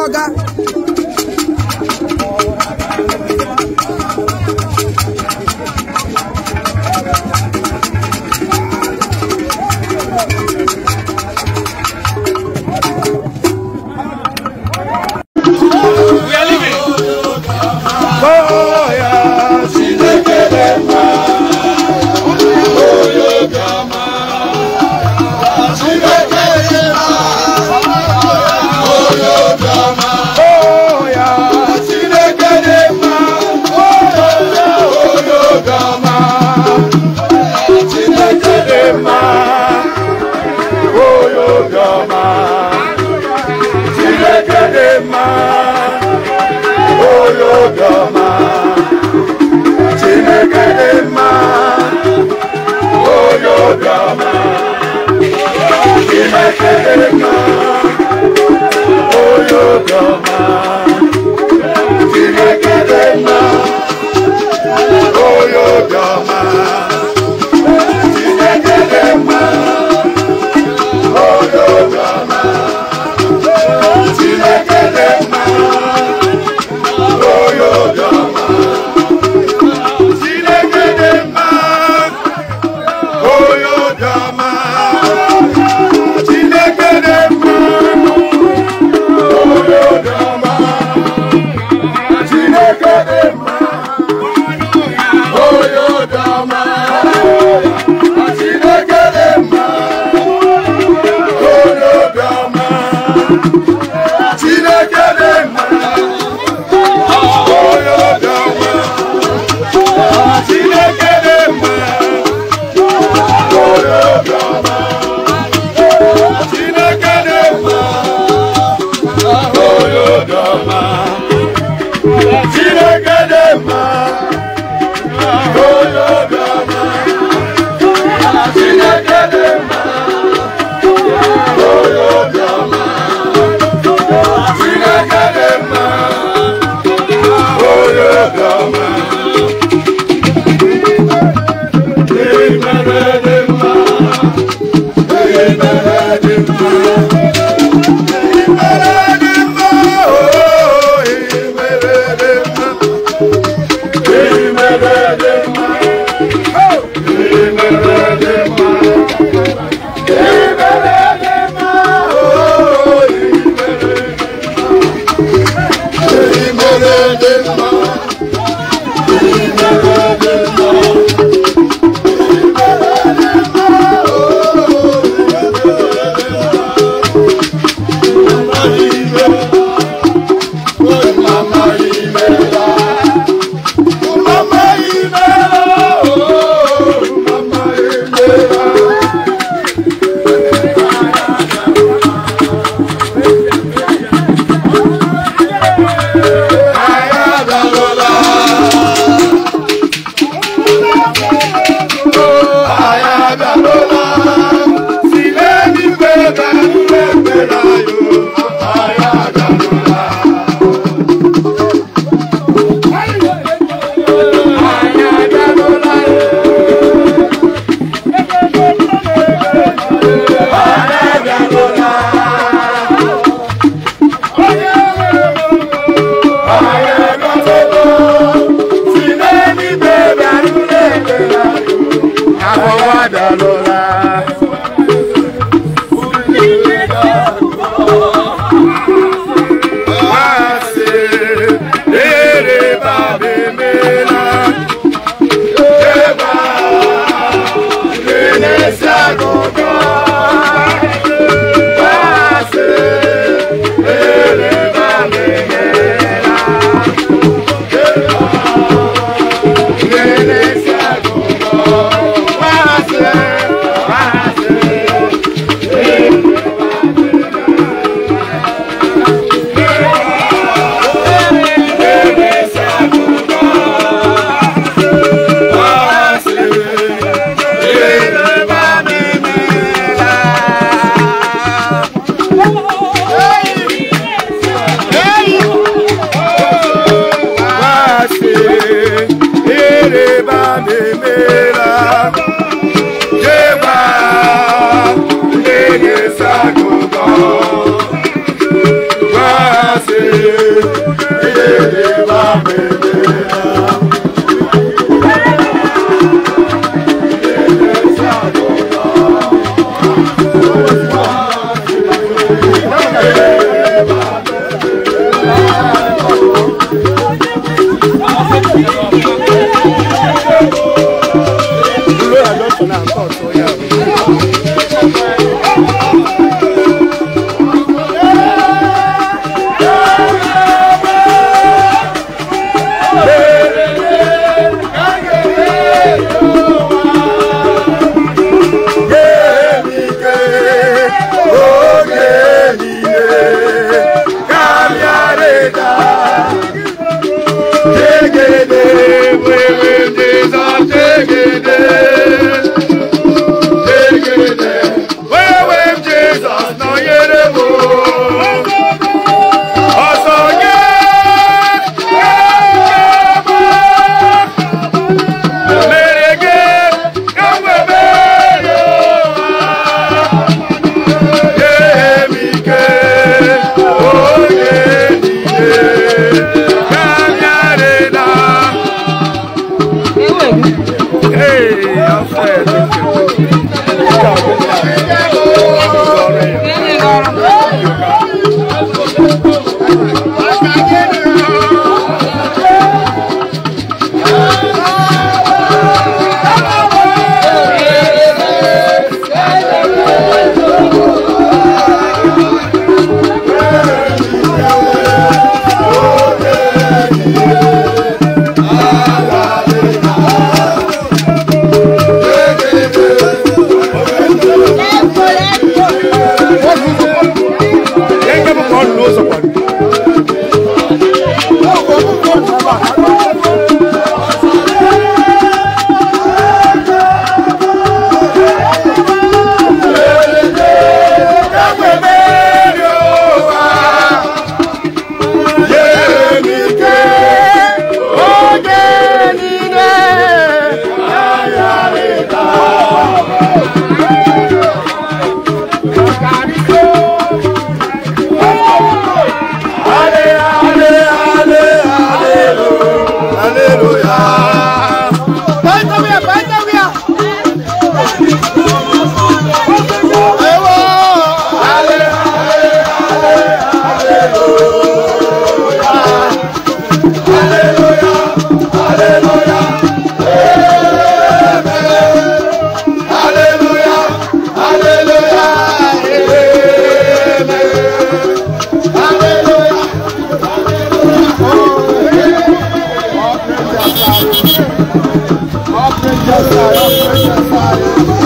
ọga Thank you. Thank you.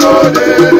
Jode.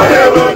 forever.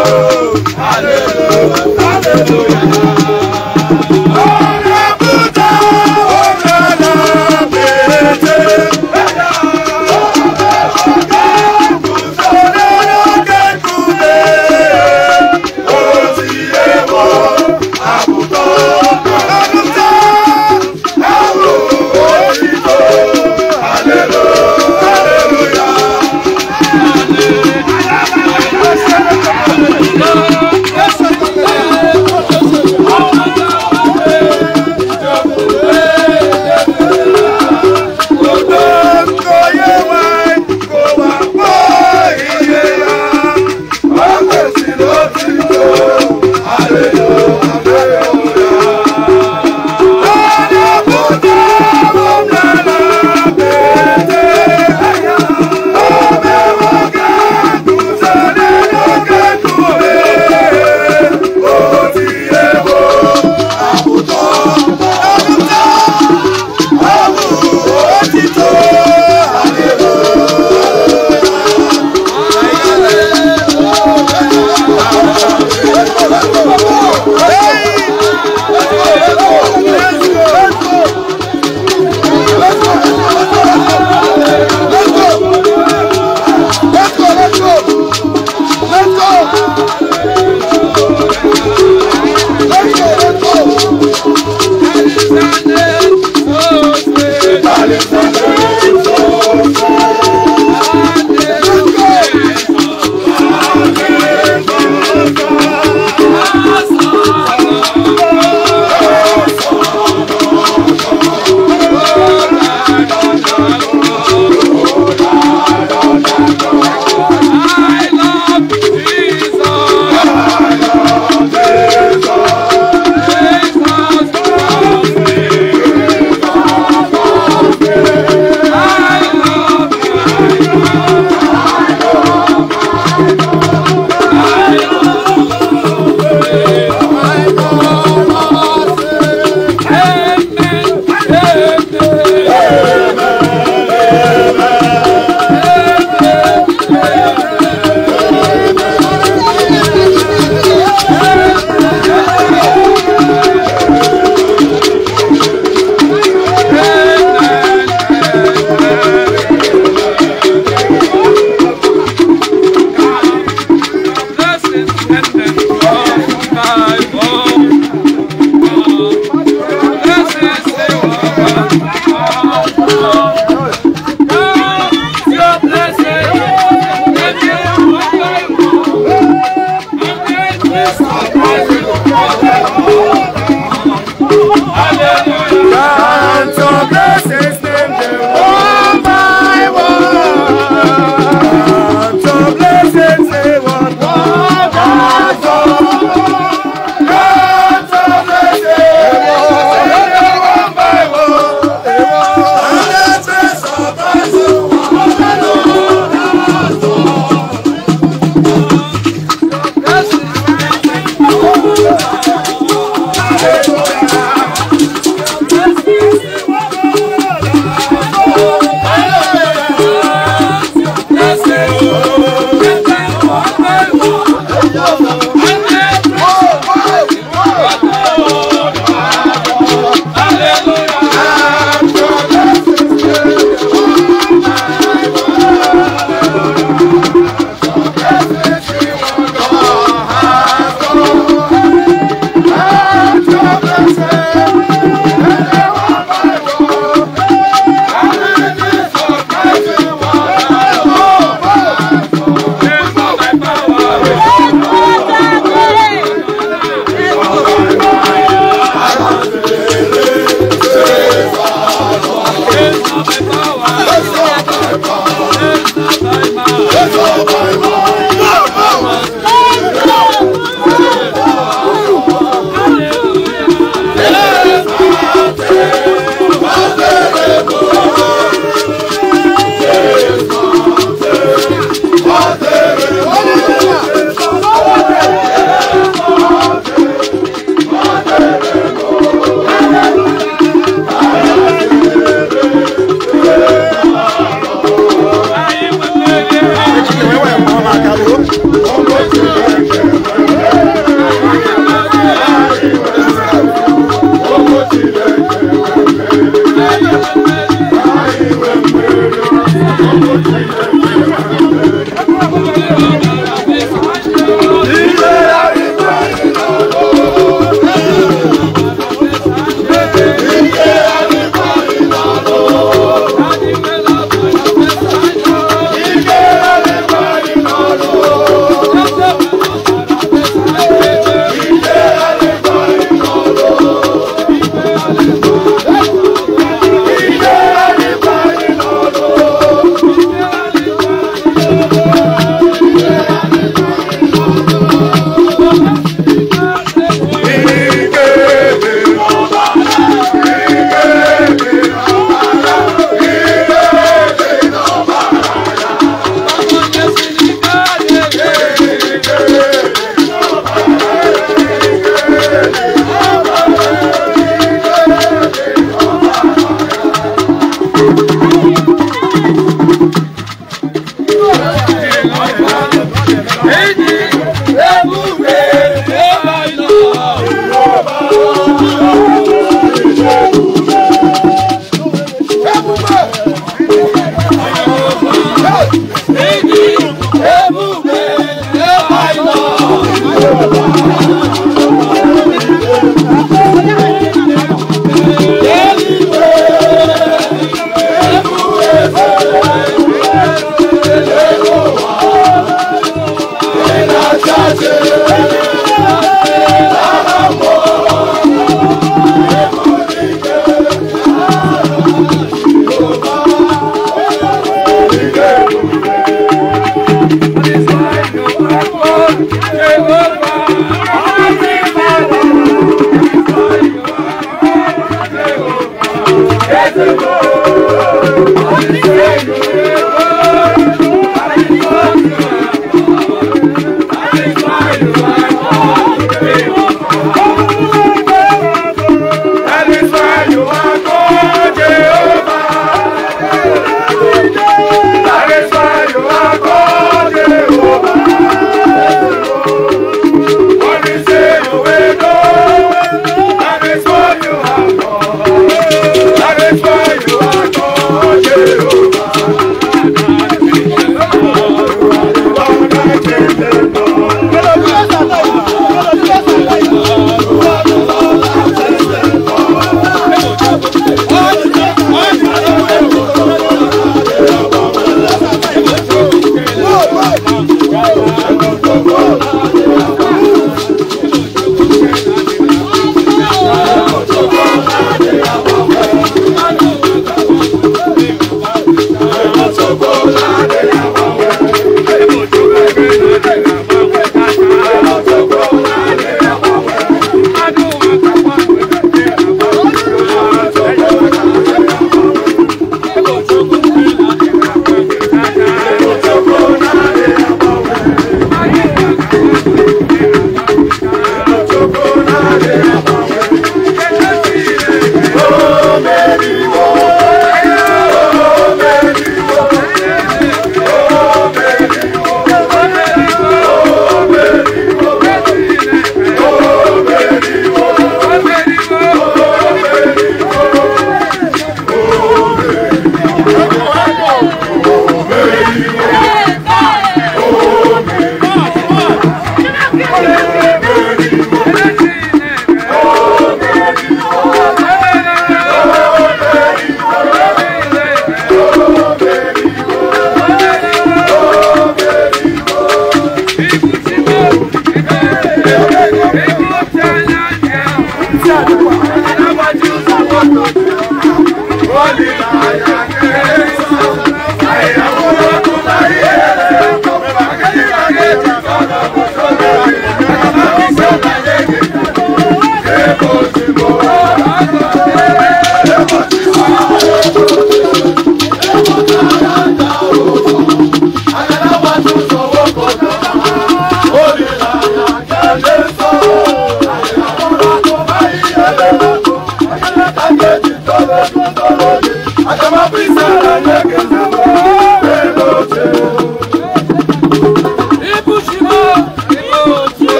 hallelujah hallelujah.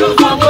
no favor.